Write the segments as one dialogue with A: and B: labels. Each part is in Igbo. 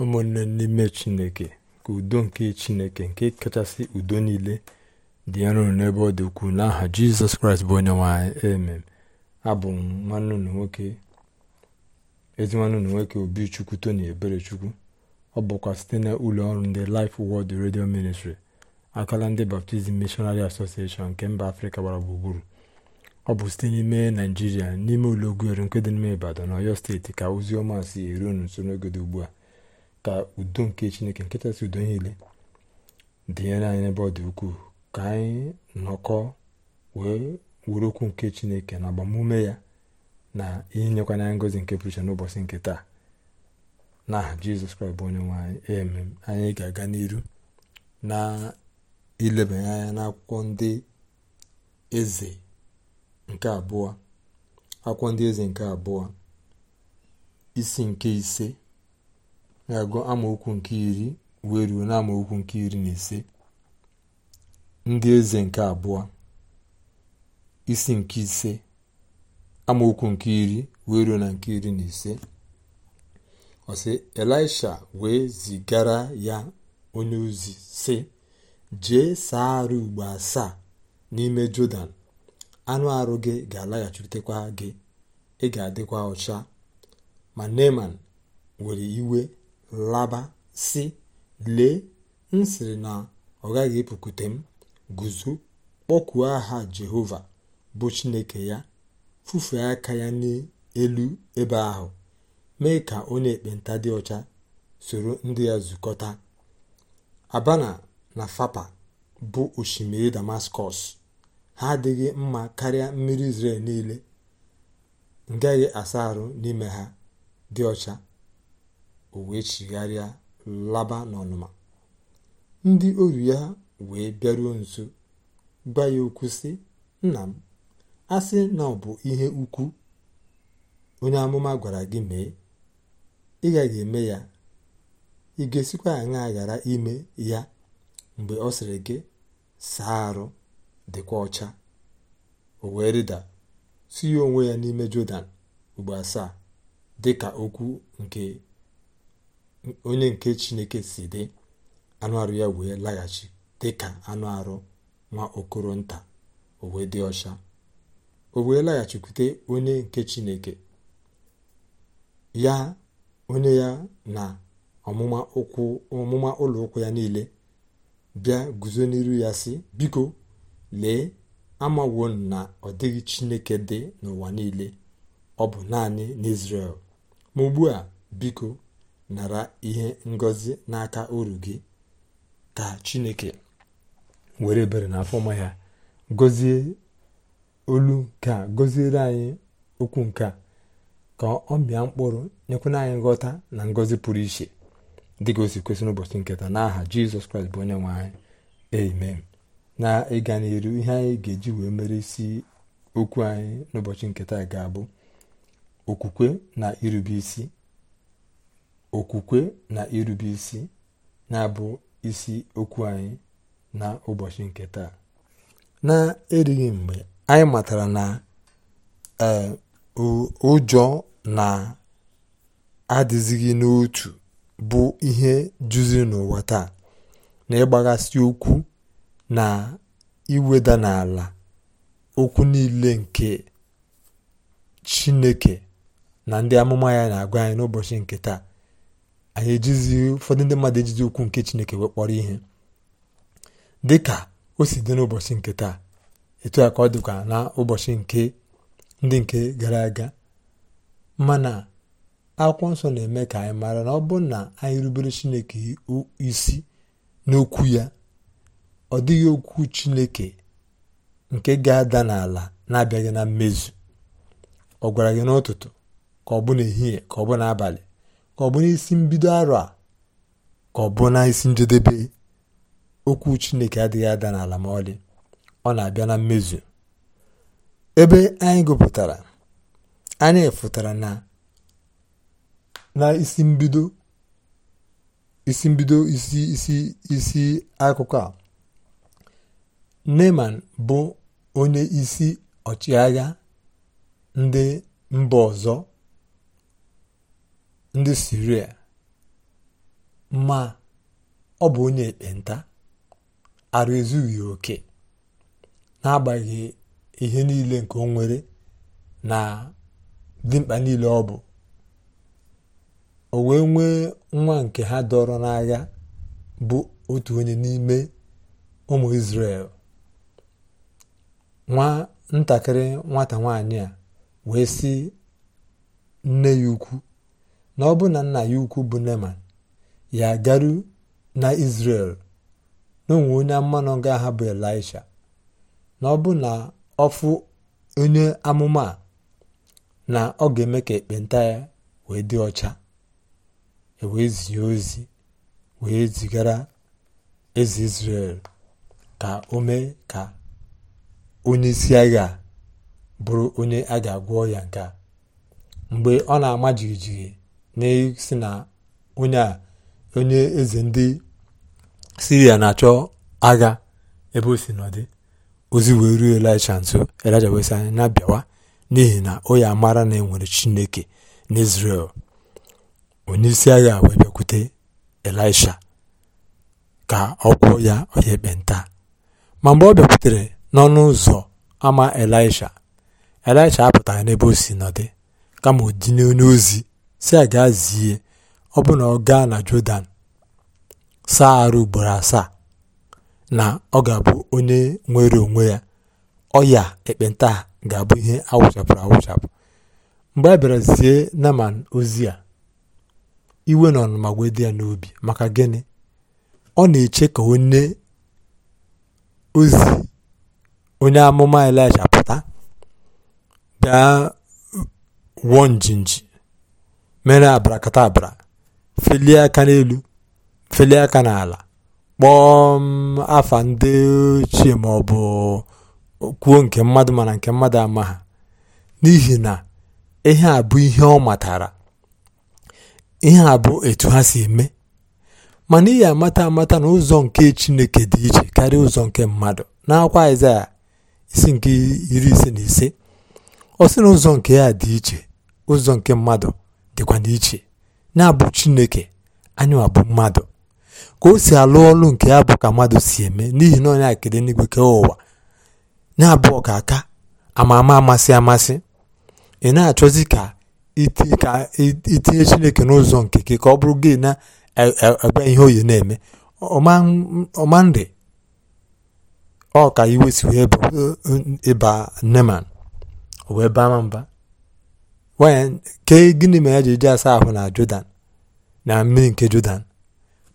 A: ụmụnne n'ime chineke ka udo nke chineke nke kachasị udo niile dị nro n'ebe ọ dị ukwuu n'aha jizọs kraịst bụ onye nwanyị emem abụ m nwanne nwoke ezi chukwu tony nwoke obichukwu tony eberechukwu ọ bụkwa site na ụlọ ọrụ ndị Life Word redio Ministry akala ndị baptizim mishonari Association nke mba afrịka gbara gburugburu ọ bụ site n'ime naijiria n'ime ụlọ ogwuere nke dị n'ime ibadan na ọyọ steeti ka ozi ọma si eru nso n'oge ugbu a ka udo nke chineke si udo niile dịnyere anyị n'ebe ọ dị ukwuu ka anyị nọkọ wee wuru okwu nke chineke na agbamume ya na ihe nyekwa anyị ngozi nke pụrụ iche n'ụbọchị nke taa na aha jizọs kraịst bụ onye nwe anyị emem anyị ga-aga n'iru na ilebanye anya n'akwụkwọ ndị eze nke abụọ akwụkwọ ndị eze nke abụọ isi nke ise ga-agụ amaokwu nke iri wee ruo na amaokwu nke iri na ise ndị eze nke abụọ isi nke ise amaokwu nke iri wee ruo na nke iri na ise ọsị elisha wee zigara ya onye ozi sị jee saa arụ ugbo asaa n'ime jọdan anụ arụ gị ga-alaghachitekwa gị ị ga-adịkwa ọcha ma neman were iwe laba si lee m sịrị na ọ gaghị epukute m guzo kpọkuo aha jehova bụ chineke ya fufee aka ya n'elu ebe ahụ mee ka onye ekpenta dị ọcha soro ndị ya zukọta abana na fapa bụ osimiri damaskọs ha adịghị mma karịa mmiri israel niile ngaghị asa arụ n'ime ha dị ọcha o wee chigharịa laba n'ọnụma ndị oru ya wee bịaruo nso gwa ya okwu sị nna m asị na ọ bụ ihe ukwu onye amụma gwara gị mee ị gaghị eme ya ị ga-esikwa ghara ime ya mgbe ọ sịrị gị saa arụ dịkwa ọcha o wee rịda ihe onwe ya n'ime jọdan ugbo asaa dịka okwu nke onye nke chineke si dị anụ arụ ya wee laghachi dị ka anụ arụ nwa okoro nta o wee dị ọcha o wee laghachikwute onye nke chineke ya onye ya na ọmụma ụlọ ụkwụ ya niile bịa guzo n'iru ya si biko lee amawo na ọ dịghị chineke dị n'ụwa niile ọ bụ naanị n'Izrel ma ugbu a biko nara ihe ngọzi n'aka uru gị ka chineke were ebere na afọma ya gozie olu nke goziere anyị okwu nke a ka ọ bịa mkpụrụ nyekwana anyị nghọta na ngọzi pụrụ iche dịka o si kwesị n'ụbọchị nketa n'aha jizọs kraịst bụ onye nwe anyị amen na ịga n'iru ihe anyị ga-eji wee mere isi okwu anyị n'ụbọchị nketa ga-abụ okwukwe na irube isi okwukwe na irube isi na-abụ isi okwu anyị na ụbọchị nke taa na-erighị mgbe anyị matara na e, ụjọ na-adịzighị n'otu bụ ihe juzi n'ụwa taa na ịgbaghasị okwu na iweda n'ala okwu niile nke chineke na ndị amụma ya na-agwa anyị n'ụbọchị nke taa anyị ejizi ụfọdụ ndị mmadụ ejizi ukwu nke chineke wee ihe dị ka o si dị n'ụbọchị nke taa etu a ka ọ dịkwa na ụbọchị nke ndị nke gara aga mana akwụkwọ nsọ na-eme ka anyị maara na ọ bụrụ na anyị rubere chineke isi n'okwu ya ọ dịghị okwu chineke nke ga-ada n'ala na-abịaghị na mmezu ọ gwara gị n'ụtụtụ ka ọ bụ n'ehihie ka ọ bụ n'abalị ka ọ bụ n'isi mbido arọ a ka ọ bụ na njedebe okwu chineke adịghị ada n'ala ma ọlị ọ na-abịa na mmezu ebe anyị gụpụtara anyị fụtara na na isi mbido isi mbido isi isi isi akụkọ a Neman bụ onye isi ọchịagha ndị mba ọzọ ndị siria ma ọ bụ onye ekpenta arụ ezughị oke n'agbaghị ihe niile nke o nwere na dimkpa niile ọ bụ o wee nwee nwa nke ha dọrọ n'agha bụ otu onye n'ime ụmụ isrel nwa ntakịrị nwata nwanyị a wee sị nne ya ukwu na ọ bụ na nna ya ukwu bụ Neman ya garu na Izrel na onye mmanụ ga-aha bụ Elisha na ọ bụ na ọfụ onye amụma na ọ ga-eme ka ekpenta ya wee dị ọcha e wee zie ozi wee zigara eze Izrel ka o mee ka onye isi agha bụrụ onye a ga-agwọ ya nke mgbe ọ na-ama jijiji n'isi na e onye eze ndị siria na-achọ agha ebe o si nọdị ozi wee ruo elisha nso elisha wee na-abịawa n'ihi na o ya mara na enwere chineke n'izrel onye isi agha wee bịakwute elisha ka ọ ya oye ekpenta ma mgbe ọ bịakwutere n'ọnụ ụzọ ama elisha elisha apụtaghị n'ebe o si nọdị kama o dị n'onye ozi si ga gaa zie ọ bụ na ọ gaa na Jọdan saa arụ ugboro asaa na ọ ga-abụ onye nwere onwe ya ọya ekpenta ga-abụ ihe awụchapụrụ awụchapụ mgbe a bịara zie Naman ozi ya iwe na ọnụma wee ya n'obi maka gịnị ọ na-eche ka onye ozi onye amụma Elaịsha pụta bịa wụọ njinji mere abrakadabra felie aka n'elu felie aka n'ala kpọọ afa ndị ochie ma ọ bụ kwuo nke mmadụ mana nke mmadụ ama ha n'ihi na ihe a bụ ihe ọ matara ihe a bụ etu ha si eme mana ihe amata amata na ụzọ nke chineke dị iche karịa ụzọ nke mmadụ n'akwa Aịzaya isi nke iri ise na ise ọ na ụzọ nke ya dị iche ụzọ nke mmadụ dịkwa n'iche na-abụ chineke anyị abụ mmadụ ka o si alụ ọlụ nke ya bụ ka mmadụ si eme n'ihi na onye akede n'igwe kee ụwa na-abụ aka ama ama amasị amasị ị na-achọzi ka itinye chineke n'ụzọ nke gị ka ọ bụrụ gị na e, e, ebe ihe oyi na-eme ọmandị ọ ka iwe si e, ịba neman wee baa mba wen kee gịnị ya ji eji asa ahụ na Jọdan na mmiri nke Jọdan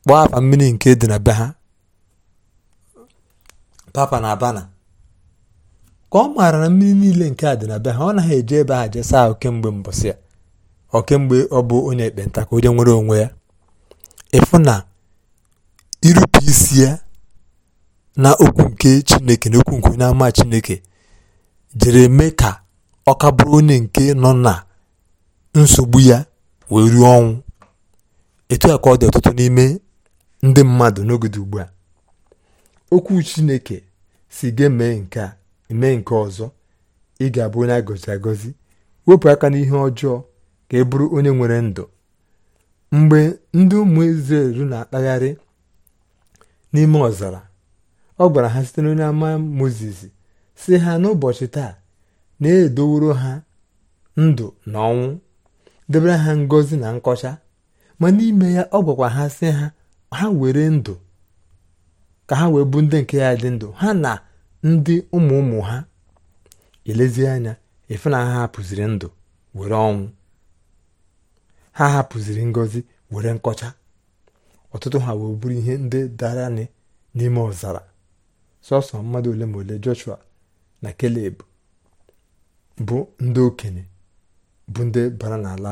A: kpọọ afa mmiri nke dị na be ha papa na abana ka ọ maara na mmiri niile nke a dị na be ha ọ na eji ebe ha jesaa ahụ kemgbe mbọsị ya ọ kemgbe ọ bụ onye ekpenta ka onye nwere onwe ya ịfụ na irupụ isi ya na okwu nke chineke na okwu nke onye ama chineke jere mee ka ọ ka onye nke nọ na nsogbu ya wee ruo ọnwụ etu a ka ọ dị ọtụtụ n'ime ndị mmadụ n'oge dị ugbu a okwu chineke si gị mee nke a nke ọzọ ị ga-abụ onye agọzi agọzi wepụ aka n'ihe ọjọọ ka ị bụrụ onye nwere ndụ mgbe ndị ụmụ Izrel na-akpagharị n'ime ọzara ọ gwara ha site n'onye ama Mozis si ha n'ụbọchị taa na-edoworo ha ndụ na ọnwụ debere ha ngozi na nkọcha ma n'ime ya ọ gwakwa ha sị ha ha were ndụ ka ha wee bụ ndị nke ya dị ndụ ha na ndị ụmụ ụmụ ha elezie anya ife na ha hapụziri ndụ were ọnwụ ha hapụziri ngozi were nkọcha ọtụtụ ha wee bụrụ ihe ndị dara n'ime ọzara sọsọ mmadụ ole ma ole Joshua na Keleb bụ ndị okenye bụ ndị bara n'ala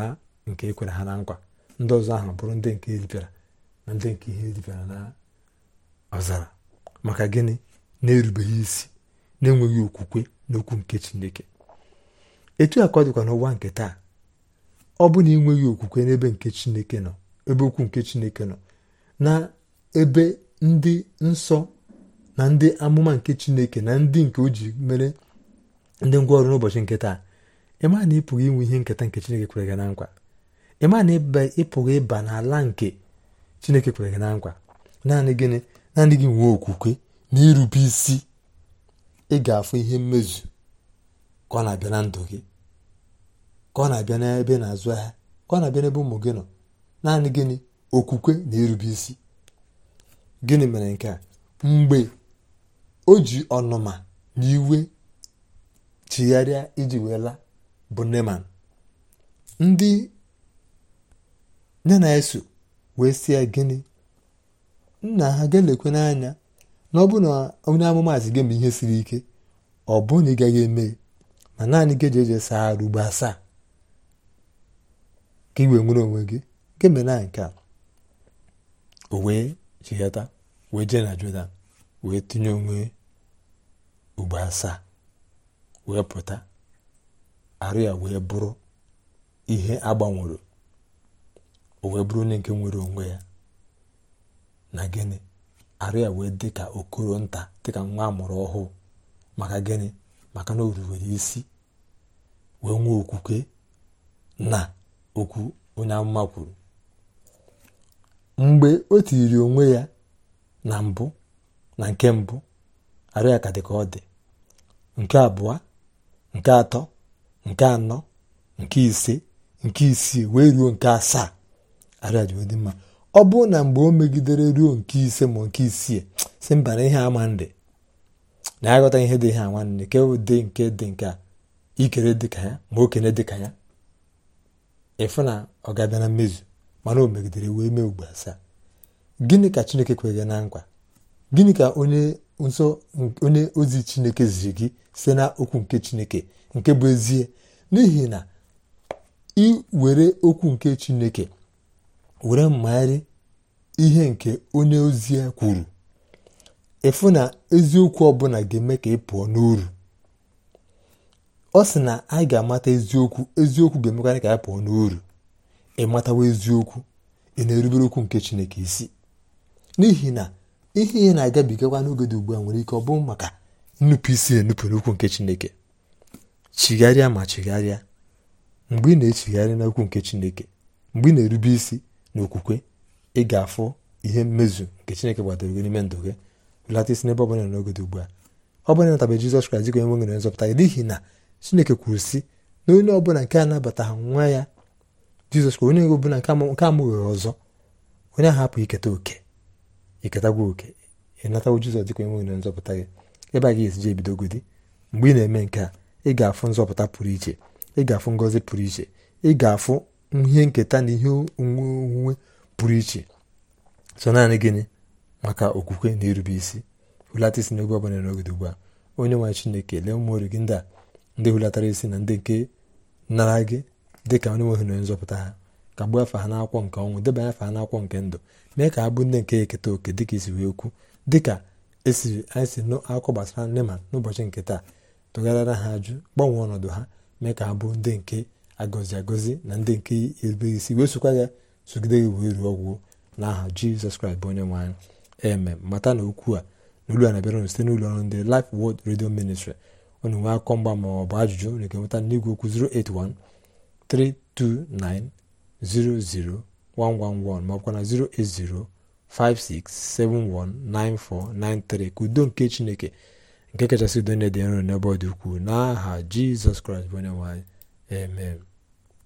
A: nke ekwere ha na nkwa ndị ọzọ ahụ bụrụ ndị nke eripịara na ndị nke ihe eripịara na ọzara maka gịnị na-erubeghị isi na-enweghị okwukwe n'okwu nke chineke etu a ka ọ dịkwa n'ụwa nke taa ọ bụ na ịnweghị okwukwe n'ebe nke chineke nọ ebe okwu nke chineke nọ na ebe ndị nsọ na ndị amụma nke chineke na ndị nke o ji mere ndị ngwa ọrụ n'ụbọchị nke taa ịmaa na ịpụghị inwe ihe nketa nke chineke kwere gị na nkwa ịmaa na ị ịpụghị ịba n'ala nke chineke kwere gị na nkwa naanị gịnị naanị gị nwee okwukwe na irube isi ị ga-afụ ihe mmezu ka ọ na-abịa na ndụ gị ka ọ na-abịa n'ebe na-azụ ahịa ka ọ na-abịa n'ebe ụmụ gị nọ naanị gịnị okwukwe na irube isi gịnị mere nke a mgbe o ji ọnụma na iwe chigharịa iji wee laa bụ neman ndị nye na-eso wee sie ya gịnị nna ha ga-elekwe n'anya na ọ bụ na onye amụmaazị gị mgbe ihe siri ike ọ bụ na ị gaghị eme ma naanị gị eji eje saa arụ ugbo asaa ka iwe nwere onwe gị e na nke a o wee chihata wee jee na wee tinye onwe ugbo asaa wee pụta arịa wee bụrụ ihe agbanwere o wee bụrụ onye nke nwere onwe ya na gịnị arịa wee dị ka okoro nta dịka nwa amụrụ ọhụụ maka gịnị maka na o isi wee nwee okwukwe na okwu onye amụma kwuru mgbe o tiri onwe ya na mbụ na nke mbụ arịa ka dị ka ọ dị nke abụọ nke atọ nke anọ nke ise nke isii wee ruo nke asaa arịajụdị mma ọ bụrụ na mgbe o megidere ruo nke ise ma nke isii si mba na ihe ama ndị na aghọta ihe dị ihe nwanne nke ụdị nke dị nke a ikere dịka ya ma okene dịka ya ịfụ na ọ ga na mmezu mana o megidere wee mee ugbo asaa gịnị ka chineke kweghị na nkwa gịnị ka onye nsọ onye ozi chineke ziri gị site na okwu nke chineke nke bụ ezie n'ihi na were okwu nke chineke were mmagharị ihe nke onye ozi ya kwuru efu na eziokwu ọbụla ga-eme ka ị pụọ n'uru ọ sị na anyị ga-amata eziokwu eziokwu ga-emekwa ka anyị pụọ n'uru ịmatawa eziokwu ị na-erubere okwu nke chineke isi n'ihi na ihe ihe na-agabigakwa n'oge dị ugbu a nwere ike ọ bụ maka nnupụ isi enupụ n'okwu nke chineke chigharịa ma chigharịa mgbe ị na-echigharị n'okwu nke chineke mgbe ị na-erube isi na okwukwe ị ga-afụ ihe mmezu nke chineke gbadoro gị n'ime ndụ gị belata isi n'ebe ọbụla n'oge dị ugbu a ọ bụla natabeghị Jizọs Kraịst dịka onye nwe nwere n'ihi na Chineke kwuru si na onye ọbụla nke ha nwa ya Jizọs Kraịst onye ọbụla nke amụghị ọzọ onye ahụ hapụ iketa oke iketagwa oke ịnatagwo jizọs dịka onye nwere nzọpụta gị ebe a ga-esi ji ebidogodi mgbe ị na-eme nke a ị ga-afụ nzọpụta pụrụ iche ị ga-afụ ngọzi pụrụ iche ị ga-afụ ihe nketa na ihe onwunwe pụrụ iche so naanị gịnị maka okwukwe na irube isi hulata isi n'oge ọbụla n'ogede ugbu a onye nwanyị chineke lee ụmụ ori gị ndị a ndị hulatara isi na ndị nke nara gị dịka onye nwe na onye nzọpụta ha kagbuo afa ha n'akwụkwọ nke ọnwụ debanye afa ha n'akwụkwọ nke ndụ mee ka ha bụ ndị nke eketa oke dịka isi e wee okwu dịka esiri anyị si nụ akụkọ gbasara ma n'ụbọchị nke taa tụgharịra ha ajụ gbanwee ọnọdụ ha mee ka ha bụ ndị nke agọzi agọzi na ndị nke erubeghị isi wee sokwa ya sogide gị wee ruo ọgwụgwụ n'aha aha jizọs kraịst bụ onye nwe eme mata na okwu a na olu a na-abịara site n'ụlọ ọrụ ndị Life Word Radio ọ na nwee akụkọ mgba ma ọ bụ ajụjụ na-eke nweta n'igwe okwu 081 329 00111 maọbụkwa na 08056719493 ka udo nke chineke nke kachasị udo dị nro n'ebe ọ dị ukwuu n'aha jizọs kraịst bụ onye nwe